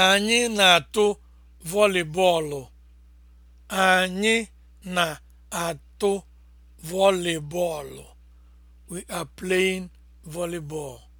Anyị na-atụ vọlị Anyị na-atụ vọlị We are playing volleyball.